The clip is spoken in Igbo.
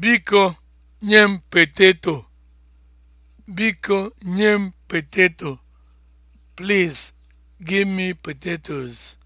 Biko nye m peteto. Biko nye m peteto. Please give me potatoes.